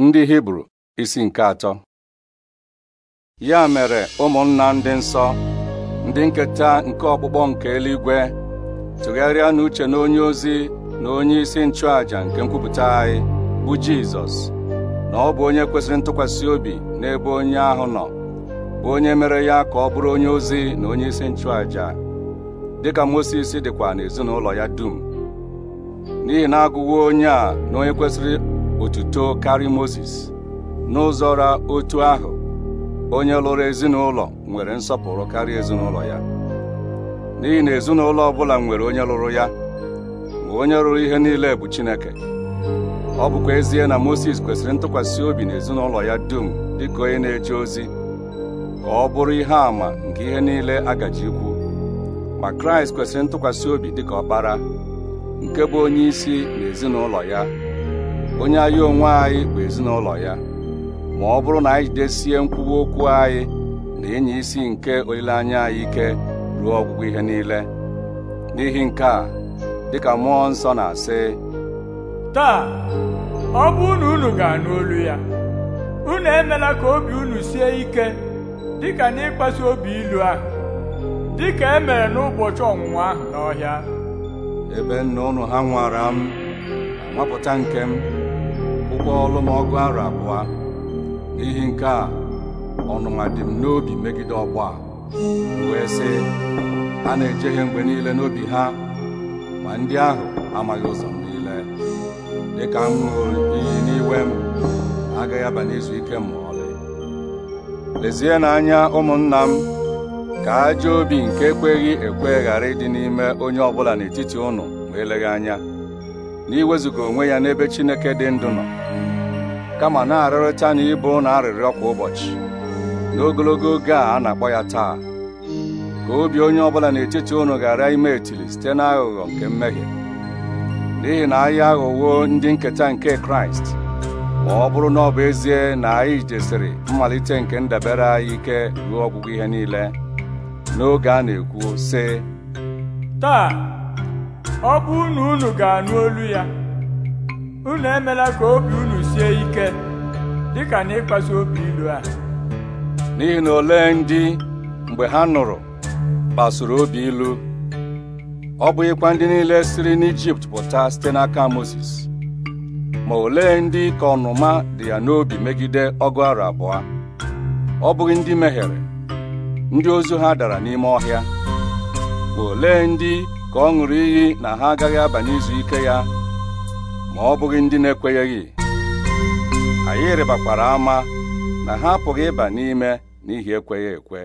ndị hibru isi nke atọ ya mere ụmụnna ndị nsọ ndị nketa nke ọkpụkpọ nke eluigwe tụgharịa n'uche na onye ozi na onye isi nchụàja nke nkwupụta anyị bụ jizọs na ọ bụ onye kwesịrị ntụkwasị obi n'ebe onye ahụ nọ bụ onye mere ya ka ọ bụrụ onye ozi na onye isi nchụàja dịka mosis dịkwa n'ezinụlọ ya dum n'ihi na agụwo onye a na onye kwesịrị otuto karị moses n'ụzọ ra otu ahụ onye lụrụ ezinụlọ nwere nsọpụrụ karịa ezinụlọ ya n'ihi na ezinụlọ ọbụla nwere onye lụrụ ya ma onye lụrụ ihe niile bụ Chineke ọ bụkwa ezie na moses kwesịrị ntụkwasị obi na ezinụlọ ya dum dịka onye na-eje ozi ka ọ bụrụ ihe àmà nke ihe niile agaji ikwu ma Kraịst kwesịrị ntụkwasị obi dịka ọkpara nke bụ onye isi na ezinụlọ ya onye anyị onwe anyị bụ ezinụlọ ya ma ọ bụrụ na anyị jidesie nkwuwa okwu anyị na enyi isi nke olileanya anyị ike ruo ọgwụgwụ ihe niile n'ihi nke a dịka mmụọ nsọ na-asị taa ọ bụrụ unu ga-anụ olu ya unu emela ka obi unu sie ike dịka n'ịkpasu obi ilu ahụ dịka emere n'ụbọchị ọnwụnwa ahụ n'ọhịa ebe nna unu ha nwara m nwapụta nke m akwụkwọ ọgụ arọ abụọ n'ihi nke a ọnụma dị m n'obi megide ọgbọ a wee sị a na-ejehie mgbe niile n'obi ha ma ndị ahụ amaghị ụzọ m niile dịka m ṅụrụ iyi n'iwe m agaghị aba n'izu ike m ma ọlị lezie n'anya ụmụnna m ka aja obi nke ekweghị ekwe ghara ịdị n'ime onye ọbụla n'etiti ụnụ ma eleghị anya na iwezuga onwe ya n'ebe Chineke dị ndụ nọ kama na-arịrịta na ịbụ na arịrịọ kwa ụbọchị n'ogologo oge a a na-akpọ ya taa ka obi onye ọbụla n'etiti unu ghara ime etili site n'aghụghọ nke mmehie n'ihi na ahịa aghụghọ ndị nketa nke Kraịst ma ọ bụrụ na ọ bụ ezie na anyị jesiri mmalite nke ndabere anyị ike ruo ọgwụgwụ ihe niile n'oge a na-ekwu sị taa ọ bụ unu unu ga-anụ olu ya unu emela ka obi unu sie ike dịka na obi ilu a n'ihi na ole ndị mgbe ha nụrụ gbasuru obi ilu ọ bụghịkwa ndị niile siri n'Ijipt pụta site n'aka Mozis ma olee ndị ka ọnụma dị ya n'obi megide ọgụ arụ abụọ ọ bụghị ndị mehiere ndị ozu ha dara n'ime ọhịa ma olee ndị ka ọ ṅụrụ iyi na ha agaghị aba n'izu ike ya ma ọ bụghị ndị na-ekwenyeghị anyị rịbakwara ama na ha apụghị ịba n'ime n'ihi ekweghị ekwe